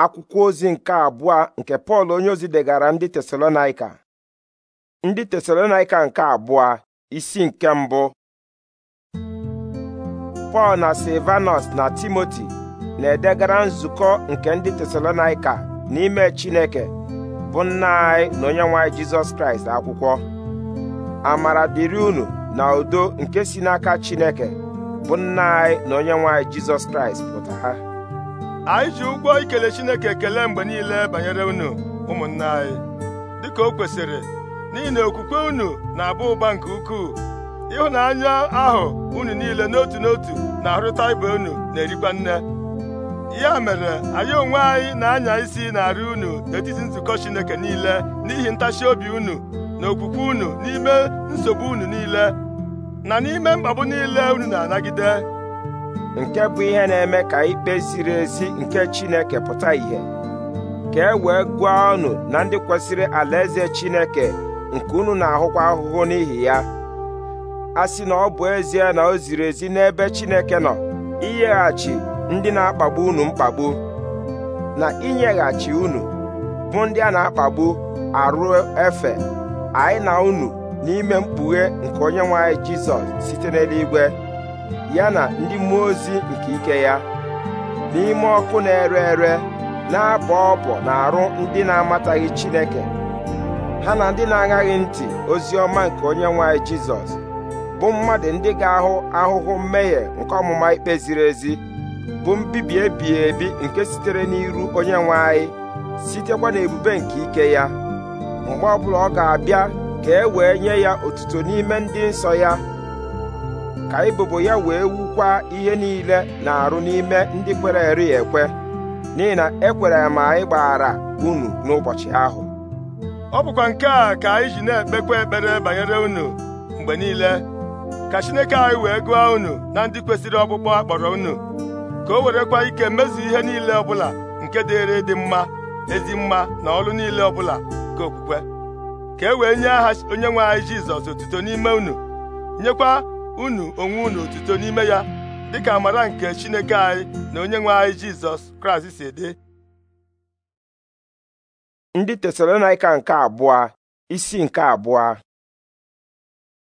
akwụkwọ ozi nke abụọ nke pọl onye ozi degara ndị tesalonaika ndị tesalonaika nke abụọ isi nke mbụ pọl na silvanus na timoti na-edegara nzukọ nke ndị tesalonaika n'ime chineke bụ nna anyị na onye nwanyị jizọs kraịst akwụkwọ amara dịrị unu na udo nke si n'aka chineke bụ nna anyị na onye nwanyị jizọs kraịst pụta anyị ji ụgwọ ikele Chineke ekele mgbe niile banyere unu ụmụnna anyị dịka o kwesịrị n'ihi na okwukwe unu na abụ ụba nke ukwuu ịhụnanya ahụ unu niile n'otu n'otu na-arụta ibe unu na-erikwa nne ya mere anyị onwe anyị na-anya isi na-arị unu n'etiti nzukọ Chineke niile n'ihi ntachi obi unu na okwukwe unu n'ime nsogbu unu niile na n'ime mkpagbu niile unu na-anagide nke bụ ihe na-eme ka ikpe ziri ezi nke Chineke pụta ìhè ka e wee gụọ ọnụ na ndị kwesịrị alaeze Chineke nke unu na-ahụkwa ahụhụ n'ihi ya a sị na ọ bụ ezie na o ziri ezi n'ebe Chineke nọ inyeghachi ndị na-akpagbu unu mkpagbu na inyeghachi unu bụ ndị a na-akpagbu arụ efe anyị na unu n'ime mkpughe nke onye nwe Jizọs site n'eluigwe ya na ndị mmụọ ozi nke ike ya n'ime ọkụ na-ere ere na-abọ ọbọ na arụ ndị na-amataghị Chineke ha na ndị na aghaghị ntị ozi ọma nke onye nwanyị Jizọs bụ mmadụ ndị ga-ahụ ahụhụ mmehie nke ọmụma ikpe ziri ezi bụ mbibi ebighị ebi nke sitere n'iru onye nwe anyị sitekwa n'ebube nke ike ya mgbe ọbụla ọ ga-abịa ka e wee nye ya otuto n'ime ndị nsọ ya ka ebubo ya wee wukwa ihe niile na-arụ n'ime ndị kwere eri ekwe n'ihi na ekwere ma anyị gbaghara unu n'ụbọchị ahụ ọ bụkwa nke a ka anyị ji na-ekpekwa ekpere banyere unu mgbe niile ka Chineke anyị wee gụọ unu na ndị kwesịrị ọkpụkpọ akpọrọ unu ka o werekwa ike mezu ihe niile ọbụla nke dịrị dị mma ezi mma na ọrụ niile ọbụla nke okwukwe ka e wee nye aha onye nwe anyị Jizọs otuto n'ime unu nyekwa unu onwe unu otuto n'ime ya dịka amara nke Chineke anyị na onye nwe anyị Jizọs Kraịst si dị ndị Tesalonaịka nke abụọ isi nke abụọ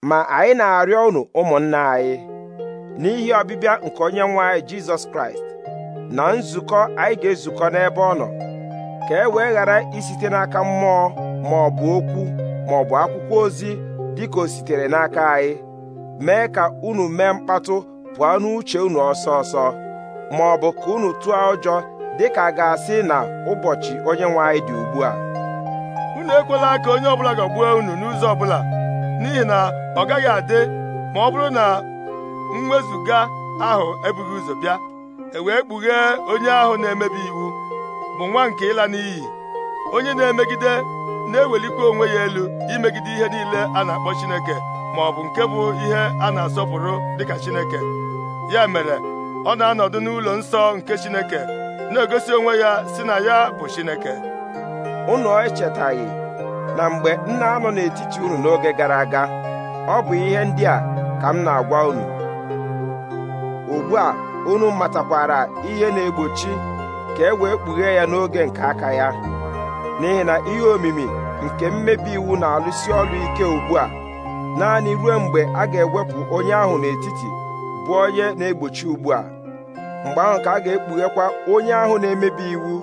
ma anyị na-arịọ unu ụmụnna anyị n'ihi ọbịbịa nke onye nwe anyị Jizọs Kraịst na nzukọ anyị ga-ezukọ n'ebe ọ nọ ka e wee ghara isite n'aka mmụọ ma ọ bụ okwu ma ọ bụ akwụkwọ ozi dịka o sitere n'aka anyị mee ka unu mee mkpatụ pụọ n'uche unu ọsọ ọsọ ma ọ bụ ka unu tụọ ụjọ dịka a ga-asị na ụbọchị onye nwe anyị dị ugbu a unu ekwela ka onye ọbụla ga agbu unu n'ụzọ ọbụla n'ihi na ọ gaghị adị ma ọ bụrụ na mwezuga ahụ ebughị ụzọ bịa e wee kpughee onye ahụ na-emebi iwu bụ nwa nke ịla n'iyi onye na-emegide na-ewelikwa onwe ya elu imegide ihe niile a na-akpọ Chineke ma ọ bụ nke bụ ihe a na-asọpụrụ dịka Chineke ya mere ọ na-anọdụ n'ụlọ nsọ nke Chineke na-egosi onwe ya si na ya bụ Chineke unu echetaghị na mgbe m na-anọ n'etiti unu n'oge gara aga ọ bụ ihe ndị a ka m na-agwa unu ugbu a unu matakwara ihe na-egbochi ka e wee kpughee ya n'oge nke aka ya n'ihi na ihe omimi nke mmebi iwu na-alụsi ọrụ ike ugbu a naanị ruo mgbe a ga-ewepụ onye ahụ n'etiti bụ onye na-egbochi ugbu a mgbe ahụ ka a ga-ekpughekwa onye ahụ na-emebi iwu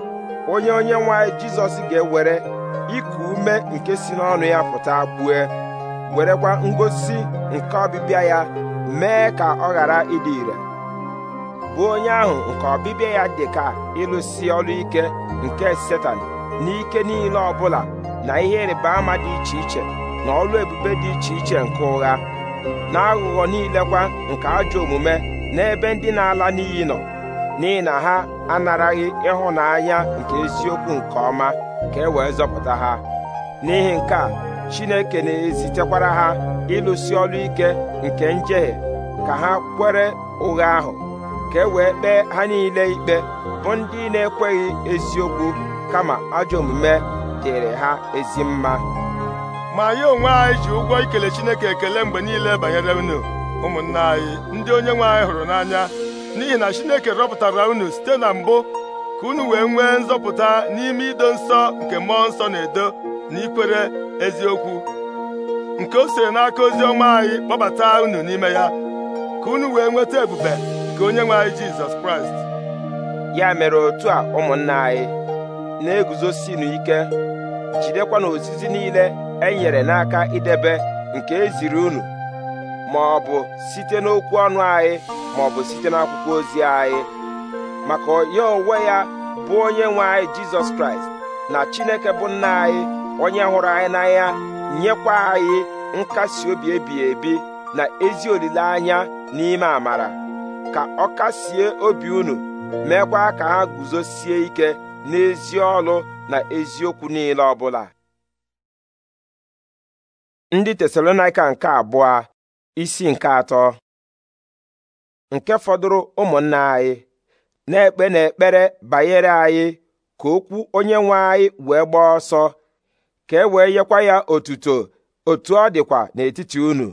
onye onye nwanyị jizọs ga-ewere iku ume nke si n'ọnụ ya pụta gbue werekwa ngosi nke ọbịbịa ya mee ka ọ ghara ịdị ire bụ onye ahụ nke ọbịbịa ya dị ka ịlụsi ọrụ ike nke setan n'ike niile ọbụla na ihe ịrịba ama dị iche iche na ọrụ ebube dị iche iche nke ụgha na aghụghọ niile kwa nke ajọ omume n'ebe ndị na-ala n'iyi nọ n'ihi na ha anaraghị ịhụnanya nke eziokwu nke ọma ka e wee zọpụta ha n'ihi nke a Chineke na-ezitekwara ha ịlụsi ọrụ ike nke njehie ka ha kwere ụgha ahụ ka e wee kpee ha niile ikpe bụ ndị na-ekweghị eziokwu kama ajọ omume dịrị ha ezi mma ma anyị onwe anyị ji ụgwọ ikele Chineke ekele mgbe niile banyere unu ụmụnna anyị ndị onye nwe anyị hụrụ n'anya n'ihi na Chineke rọpụtara unu site na mbụ ka unu wee nwee nzọpụta n'ime ido nsọ nke mmụọ nsọ na-edo na ikwere eziokwu nke o siri n'aka ozi ọma anyị kpọbata unu n'ime ya ka unu wee nweta ebube nke onye nwe anyị Jizọs Kraịst ya mere otu a ụmụnna anyị na-eguzosinu ike jidekwa n'ozizi niile e nyere n'aka idebe nke eziri unu ma ọ bụ site n'okwu ọnụ anyị ma ọ bụ site n'akwụkwọ ozi anyị maka ya onwe ya bụ onye nwe anyị jizọs kraịst na chineke bụ nna anyị onye hụrụ anyị n'anya nyekwa anyị nkasi obi ebighị ebi na ezi olileanya n'ime amara ka ọ kasie obi unu meekwa ka ha guzosie ike n'ezi ọlụ na eziokwu niile ọbụla ndị tesalonaika nke abụọ isi nke atọ nke fọdụrụ ụmụnna anyị na-ekpe n'ekpere banyere anyị ka okwu onye nwe anyị wee gbaa ọsọ ka e wee nyekwa ya otuto otu ọ dịkwa n'etiti unu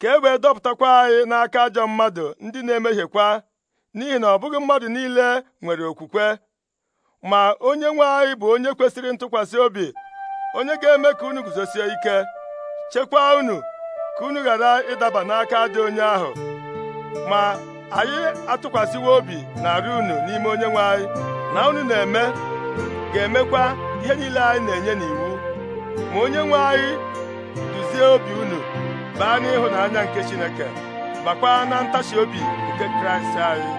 ka e wee dọpụtakwa anyị n'aka ajọ mmadụ ndị na-emehiekwa n'ihi na ọ bụghị mmadụ niile nwere okwukwe ma onye nwe anyị bụ onye kwesịrị ntụkwasị obi onye ga-eme ka unu guzosie ike Chekwaa unu ka unu ghara ịdaba n'aka dị onye ahụ ma anyị atụkwasịwo obi narị unu n'ime onye nwe anyị na unu na-eme ga-emekwa ihe niile anyị na-enye n'iwu ma onye nwe anyị duzie obi unu baa n'ịhụnanya nke Chineke bakwa na ntachi obi nke Kraịst anyị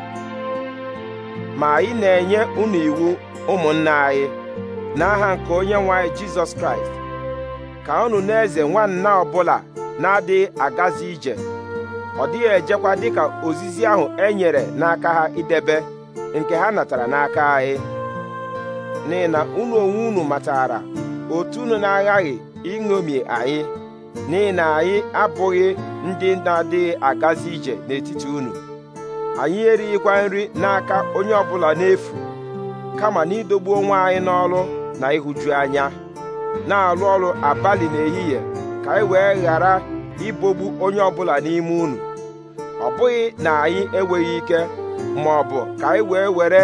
ma anyị na-enye unu iwu ụmụnna anyị n'aha nke onye nwe anyị Jizọs Kraịst ka unu na-eze nwanna ọbụla na-adịghị agazi ije ọ dịghị ejekwa dịka ozizi ahụ e nyere n'aka ha idebe nke ha natara n'aka anyị n'ihi na unu onwe unu matara otu unu na-aghaghị iṅomi anyị n'ihi na anyị abụghị ndị na-adịghị agazi ije n'etiti unu anyị erighịkwa nri n'aka onye ọbụla n'efu kama n'idogbu onwe anyị n'ọrụ na ịhụju anya na-alụ ọrụ abalị n'ehihie ka anyị e wee ghara ibogbu onye ọbụla n'ime unu ọ bụghị na anyị enweghị ike ma ọ bụ ka anyị e wee were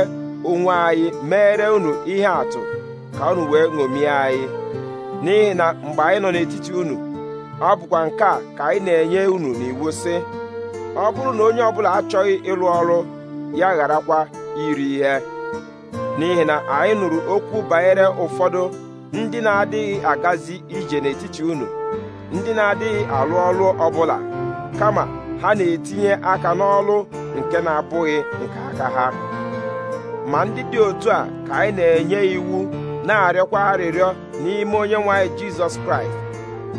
onwe anyị meere unu ihe atụ ka unu wee ṅomie anyị n'ihi na mgbe anyị nọ n'etiti unu ọ bụkwa nke a ka anyị na-enye unu n'iwu sị ọ bụrụ na onye ọbụla achọghị ịlụ ọrụ ya gharakwa iri ihe n'ihi na anyị nụrụ okwu banyere ụfọdụ ndị na-adịghị agazi ije n'etiti unu ndị na-adịghị alụ ọrụ ọbụla kama ha na-etinye aka n'ọlụ nke na-abụghị nke aka ha ma ndị dị otu a ka anyị na-enye iwu na-arịọkwa arịrịọ n'ime onye nwanyị Jizọs Kraịst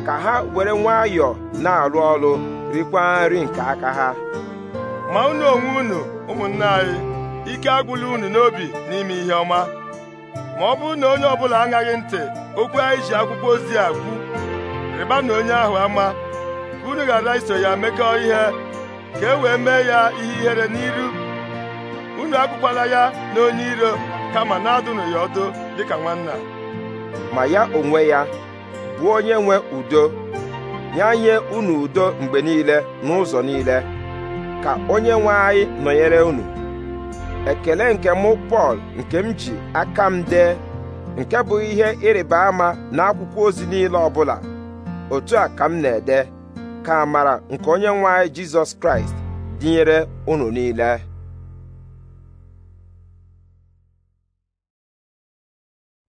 ka ha were nwayọọ na-arụ ọrụ rikwa nri nke aka ha ma unu onwe unu ụmụnne anyị ike agwụla unu n'obi n'ime ihe ọma ma ọ bụrụ na onye ọbụla aṅaghị ntị okwu anyị ji akwụkwọ ozi a kwu rịba na onye ahụ ama ka unu ghara iso ya mekọọ ihe ka e wee mee ya ihe ihere n'iru unu akpụkwala ya na onye iro kama na-adụnụ ya ọdụ dịka nwanna ma ya onwe ya bụ onye nwe udo nye unu udo mgbe niile n'ụzọ niile ka onye nwe anyị nọnyere unu ekele nke mụ Pọl nke m ji aka m dee nke bụ ihe ịrịba ama n'akwụkwọ ozi niile ọbụla otu a ka m na-ede ka amara nke onye nwe anyị Jizọs Kraịst dịnyere unu niile